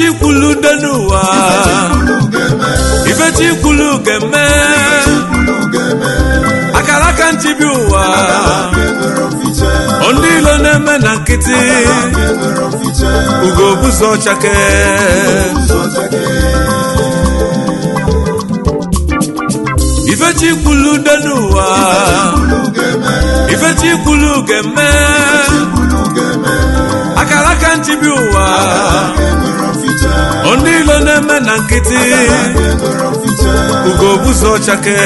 ifechikwulu ude n'ụwa ifechikwulu ga-eme akara aka nchibi ụwa ndị ilo na-eme na nkịtị ugo buzo chake ifechikwulu ude n'ụwa ifechikwulu ga-eme akara aka nchibi ụwa onu ilo na-eme na nkịtị ugo buzo chake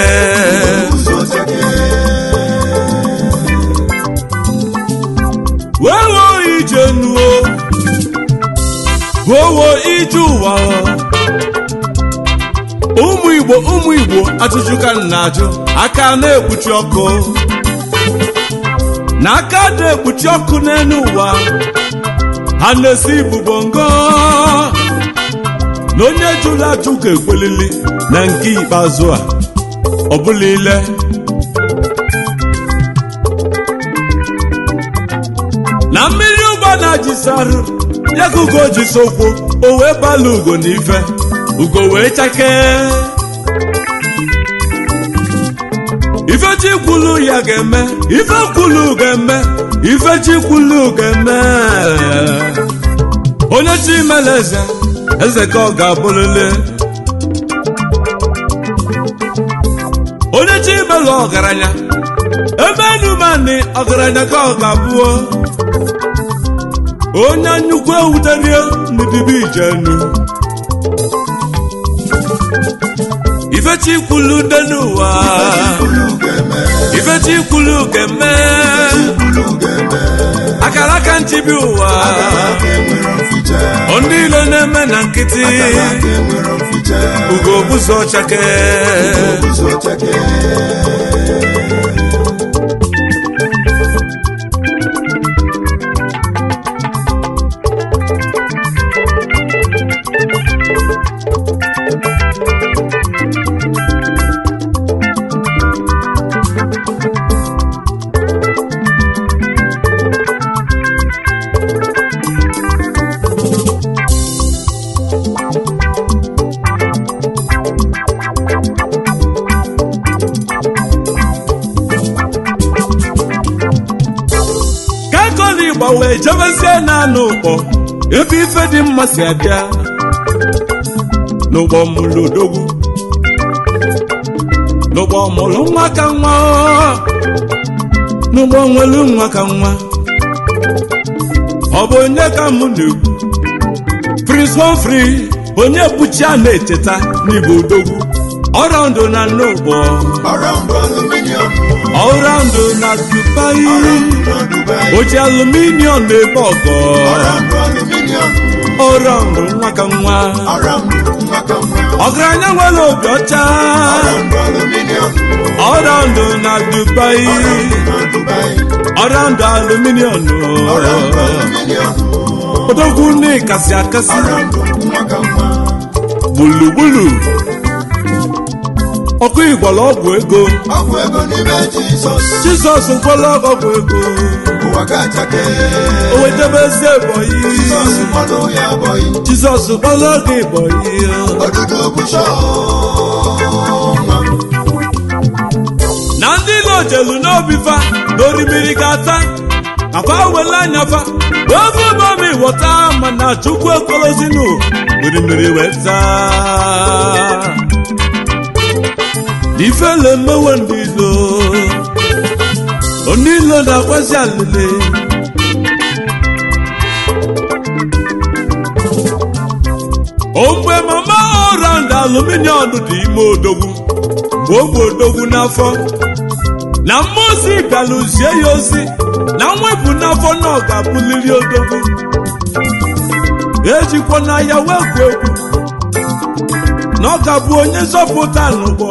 wewo ije nuo buowo ije ụwa ụmụ igbo ụmụ igbo ajụjụ ka na-ajụ aka na-ekpuchi ọkụ na aka na-ekpuchi ọkụ n'elu ụwa ha na-esi ibu bongo na onye jụrụ ajụ ga ekwelili na nke ikpeazụ a ọ bụla ile na mmiri ụgbọ na-ajisarụ ya ka ugo jisokwu o wee bala ugo na ife ugo wee chakee ifechi kwulu ya ga-eme ife kwulu ga-eme ifechi kwulu ga-eme onye chi meleze eze ka ọ ga-abụlele onye chi imelụ ọgaranya ebe enumani ọgaranya ka ọ ga-abụọ onye nnukwu ewuterie n'ibibi ijenu ifechi Ifechikwulu dị n'ụwa ifechi kwulu ga-eme nchi bi ụwa ndị ile na-eme na nkịtị ugo bụzọ chake ijebezie na n'ụkpọ ebe ife dị mma si abịa n'ụgbọ mụlụ odogwu n'ụgbọ mụlụ nwa ka nwa n'ụgbọ nwelu nwa ka nwa ọ bụ onye ka mụ na-ekwu prince Humphrey onye bụchi a na-echeta n'igbo odogwu ọrọ ndụ na n'ụgbọ o ji aluminium na-eme ọgọ ọra mbụ nwa ka nwa ọgaranya nwere obi ọcha ọra ndụ na dubai ọra ndụ aluminium odogwu nne kasị akasị gburugburu ọkụ ịgwọrọ ọgwụ ego jizọs gwọrọ ọgwụ ego ụwa ga-achake o wetebe ezi ebonyi jizọs ya ebonyi jizọs kpọrọ gị ebonyi odudu bụcha na ndị Igbo jelu n'obi fa na orimiri ga-ata afa wele anya fa ofe bami wọta mana chukwu ekolozinu orimiri weta ife le onilo na-agbazi alele ogbe mama orand aluminium dị ime odogwu mgbe ogbe odogwu n'afọ na mmozi galuzie ya ozi na mwepụ n'afọ na ọ ga-abụliri odogwu ejikwa na ya wekwu egwu na ọ ga onye nzọpụta n'ụgbọ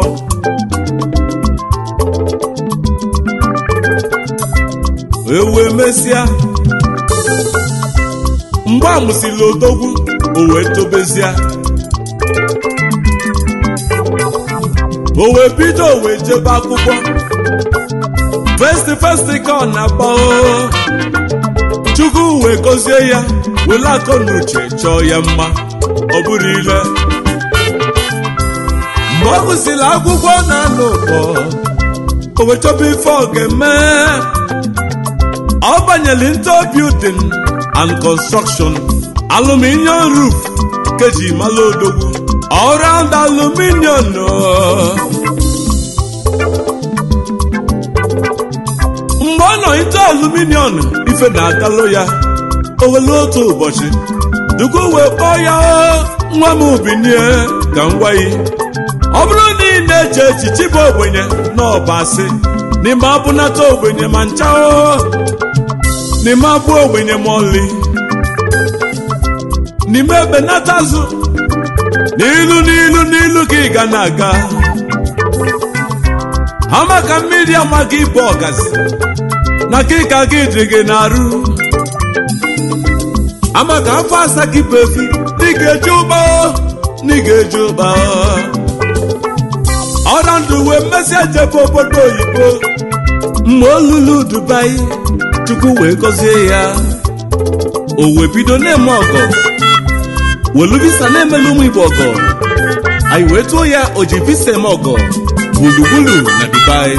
wee mesịa mgbe a mụsịrị odogwu o wee tobezie o wee bido o wee jebe akwụkwọ festi festi ka ọ na-akpọ chukwu wee gọzie ya were akọ na uche chọọ ya mma ọ bụrụ ile mgbe ọ gụsịrị akwụkwọ na-anọ ụkpọ o wee chọba ife ọ ga-eme ọ banyere into building and construction aluminium roof keji mala odogwu all round aluminium mgbe ọ nọ into aluminium ife na-adalụ ya owele otu ụbọchị dugo wee kpọọ ya nwa m ubinie ka m gwa ọ bụrụ na ị na-eche echichi bụ ogbenye na ọbasị n'ime abụnata ogbenye ma ncha n'ime abụọ ogbenye mọli n'ime ebenata azụ n'ilu n'ilu n'ilu ka ị ga na-aga Amaka mmiri ama gị bụ na ka ịka gị dị gị na-arụ Amaka afọ asa gị bụ efi ga-eje ụba na ị ga-eje ụba ọra ndụ wee mmesị ejebe obodo oyibo mgbe olulu Dubai chukwu wee gọzie ya o wee bido na-eme ọgọ welu visa na-emela ụmụ igbo ọgọ anyị wee tụọ ya o ji visa eme ọgọ gburugburu na dubai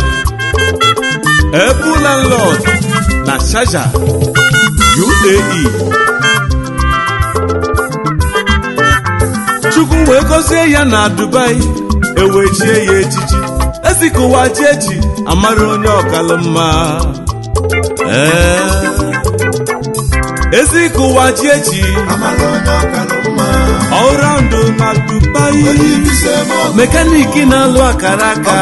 ebu landlord na sharjah uae chukwu wee gọzie ya na dubai e chie ya echichi ezikụwa ji eji amara onye ọkalụ mma Eh. ezi ka ụwa ji eji na Dubai. mekaniki na-alụ akara aka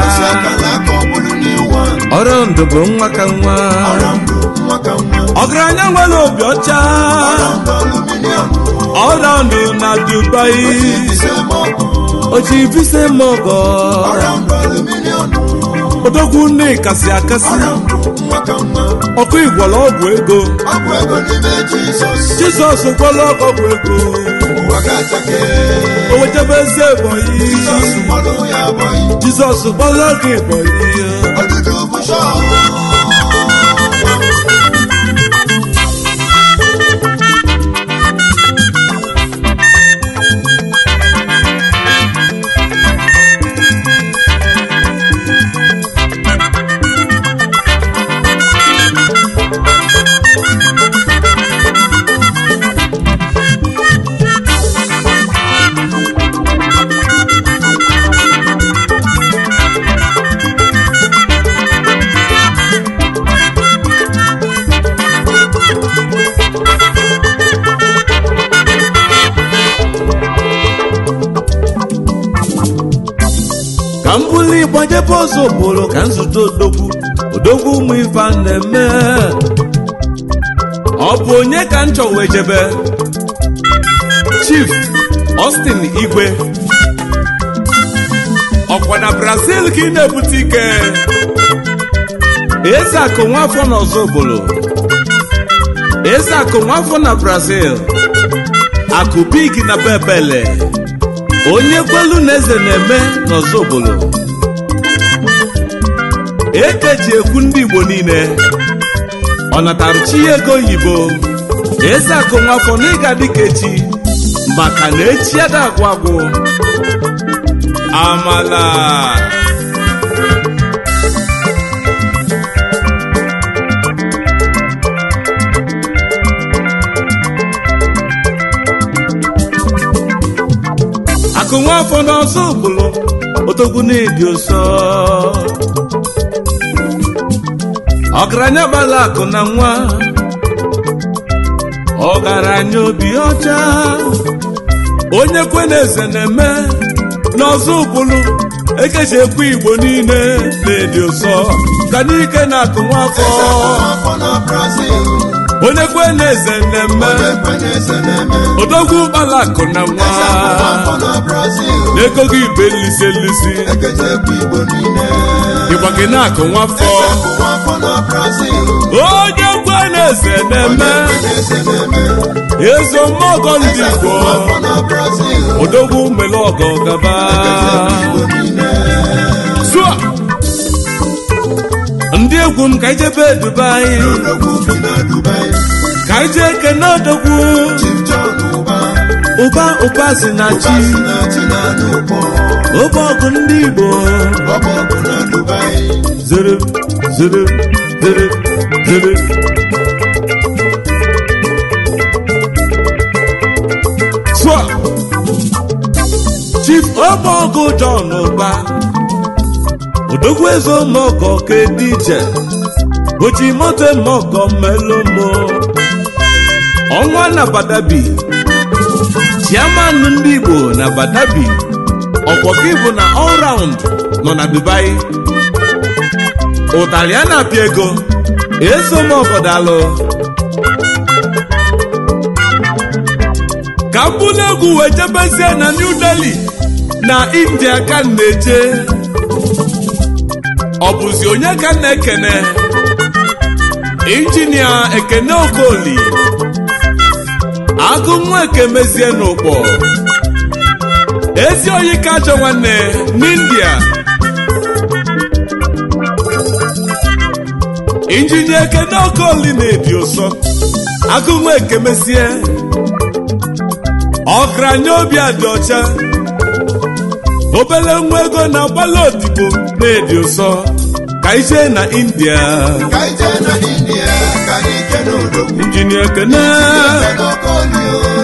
ọraụndụ bụ nwa ka nwa ọgaranya nwere obi ọcha ọraụndụ na dubai oji visa mọgọ odogwu nne si akasi ọkụ igwọrọ ọgwụ ego jizọs gwọrọ ọgwụ ego o wetebe eze ebonyi jizọs gbọrọ gị ebonyi ọzọ bụrụ ka nzute odogwu odogwu ụmụ ife na-eme ọ bụ onye ka m wee jebe Chief Austin Igwe ọkwa na Brazil ka ị na-ebute ike eze akụ nwafọ na obolo eze akụ nwafọ na Brazil akụ big na bebele onye kwelu na eze na-eme obolo eke ji ekwu ndị Igbo niile ọ natara chi ego oyibo eze akụ nwafọ na ịga dịka echi maka na echi ada agwụ agwụ amala akụ nwafọ n'ọzọ ụbụlụ otogwu na-ebi ụsọ ọgaranya gbara akụ na nwa ọgaranya obi ọcha onye kwe na eze na-eme n'ọzọ ụkwụlụ. ekechi ekwe igbo niile na-edi ụsọ ka n'ike na akụ nwafọ onye kwe na eze na-eme odogwu ụgbala akụ na nwa n'ego gị ibe lisi nlisi ịgwa gị na akụ nwafọ onye kwe na-eze na-eme ezo mmọgọ ndị Igbo odogwu mele ọgọ gaba zụa ndị egwu m ka ijebe Dubai ka ije kene odogwu ụba ụba si na chi ụba ọgụ ndị Igbo zere zere Soit Omogo John ụba Odogwezo Mogo ke DJ Ochimote Melomo Ọnwa na Badabi Chiamanụ ndị Igbo na Badabi ọkwọkị bụ na ọl round nọ na Dubai ụtarị a na-apịa ego ezomọfọdalụ ka m bụrụ egwu wee jebezie na New Delhi na India ka m ọ bụzi onye ka m na-ekene injinia Ekene Okoli agụ nwa ekemezie n'ụkpọ ezi oyi ka achọ nwanne n'India injinye ekene okoli na-ebi ụsọ agụnwa ekemesie nye obi adị ọcha obele nwa ego na agbala odibo na edi ụsọ ka ije na india injinia kene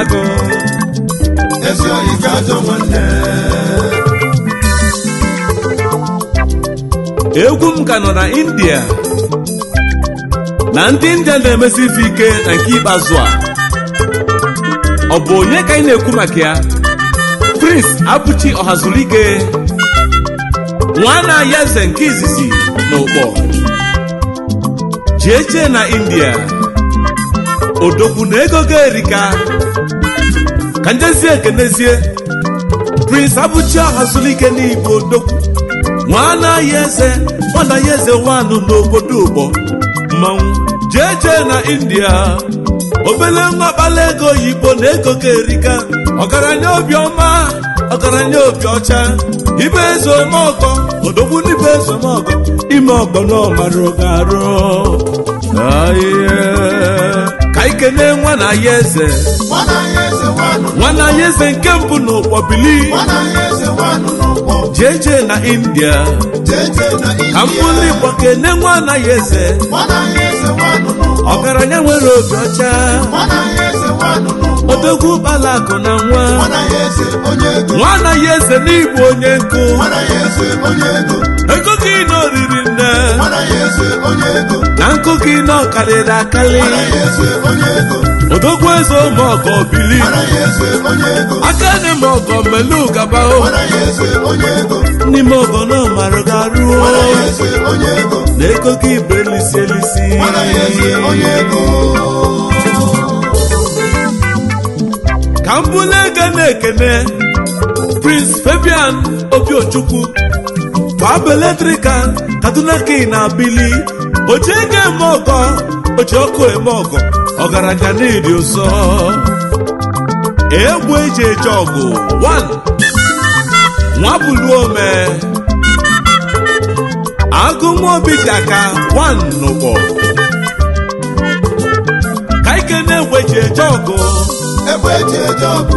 agụ ezi ga egwu m ka nọ na india na ndị india na-emesi ife ike na nke ikpeazụ a ọ bụ onye ka ị na-ekwu maka ya prince abụchi ọhazulike nwana ya eze nke izizi na ụkpọ jeje na india odogwu na ego ga erika ka njezie ekenezie prince abụchi ahazulike n'igbo odogwu nwa anaghị eze nwanu eze n'obodo ụgbọ mmanwụ jee jee na india obele nwa kpala ego oyibo na ego ga erika ọgaranya obiọma ọgaranya obi ọcha ibe eze omeọgọ odogwu n'ibe eze omeọgọ ime ọgbọ na ọmara ga arụ ka ikene nwa na ya eze nwana ya eze nke mbụ n'ụkpọ bili jeje na india ka mbụli igbo kene nwa na ya eze ọgaranya nwere obi ọcha odogwu ụkpala na nwa nwana ya eze n'igbo onye nkụ ego gị na oriri na nkoki nọ karịrị akarị odogwu eze ụmụ ụmụọgọ bili aka nị ma ọgọ mmelu gaba n'ime ọgọ na ọmara garuo na ekoko ibe elisi elisi ka m na-ekene Prince Fabian Obi kwabụ eletrika kaduna na abili oche ego eme ọgọ oche ọkụ eme ọgọ ọgaraja n'ịdị ụzọ egwu eji eje ọgụ 1 me agụmobi ji aka 1 ka ike na-egwe eji eje ọgụ e eje ọgụ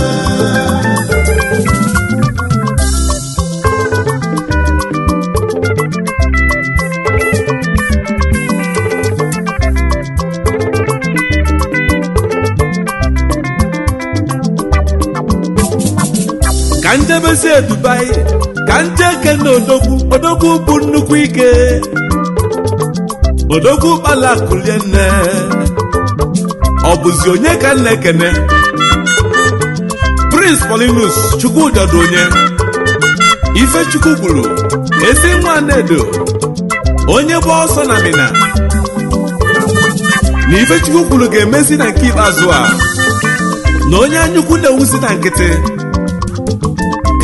emezie Dubai ka njeke na odogwu odogwu bụ nnukwu ike odogwu kpala nne ọ bụzi onye ka nna ekene Prince Paulinus chukwudọdụ onye Ifechukwu gwuru ezi nwa edo onye bụ ọsọ na Mina na Ifechukwu kwuru ga-emezi na nke ikpeazụ a na onye anyaukwu na-ewuzi na nkịtị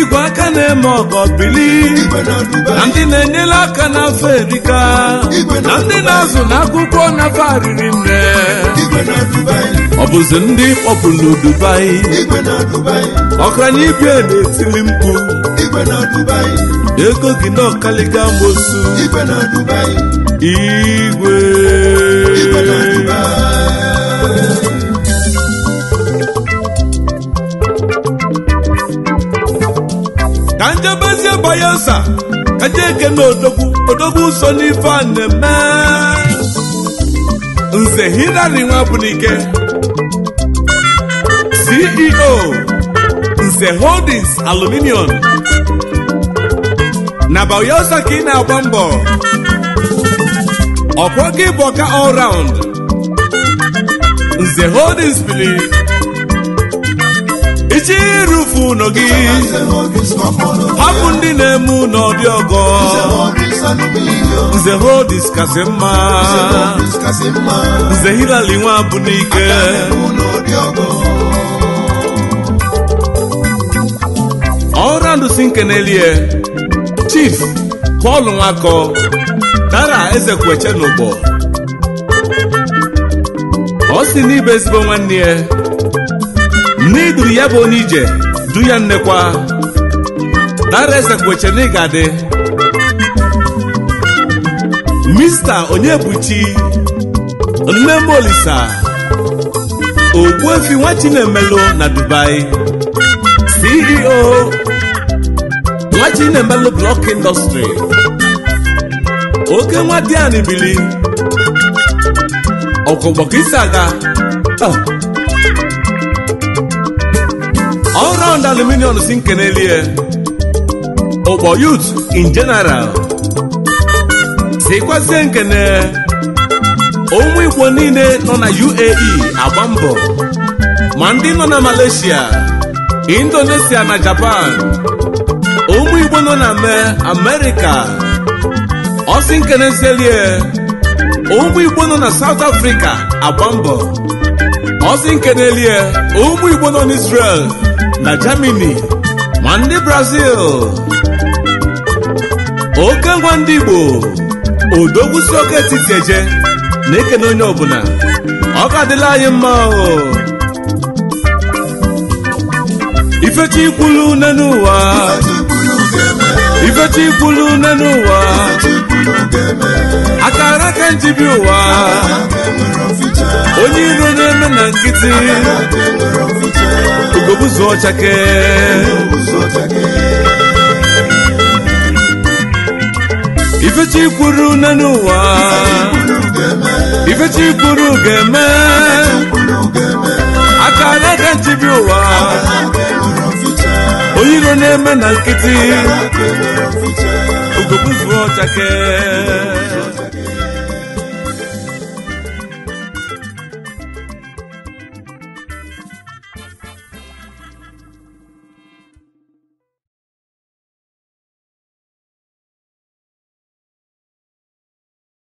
igwe aka na-eme ọgọ bili na ndị na-enyere aka n'afọ erika na ndị na-azụ n'akwụkwọ n'afọ ariri nne ọ bụzi ndị kpọpụ dubai ọkranye ibie na-etili mkpu ego gị na ọkaliga mosu igwe na odogwu odogwu so n'ife a na-eme nze hilary nwabunike ceo nze holdings aluminium na bayelsa ka ị na-agba mbọ ọkwa gị bụ ọka nze holdings bili ichi rufu ụlọ gị na-eme ụlọ dị ọgọ nze hodis kasị mma nze hilali nwa bụ n'ike ọra ndụsi nkenelie chief Paul Nwakọ dara ezekweche n'ụgbọ ọ si n'ibe ezigbo nwanne ya nne iduru ya bụ onye ije du ya nnekwa dara eze gbochenigadị mista onye nne m olisa efi nwa chinemelu na dubai ceo nwa chinemelu blọk indọstrị oke nwa dian bili ọkọgbọkisi aga ọrụ ah. ọnd aluminium si elie ụkpọ youth in general sikwazie nkene ụmụ igbo niile nọ na uae agba mbọ ma ndị nọ na malaysia indonesia na japan ụmụ igbo nọ na Amerika; ọsị nkene selie ụmụ igbo nọ na south africa agba mbọ ọsị elie; ụmụ igbo nọ na israel na germany ma ndị brazil oke ngwa ndị igbo odogwusi oke keje eje na-ekene onye ọbụla ọ ka dịla anyị mma ifechi ikwulu nne n'ụwa ifechi ikwulu n'ụwa akara njibi ụwa onye iro na-eme na nkịtị ugogbuzu ọchake ifechi kwuru nne n'ụwa ifechi kwuru ga-eme aka na-ede nchibi ụwa oyiro na-eme na nkịtị ogobuzuo chake.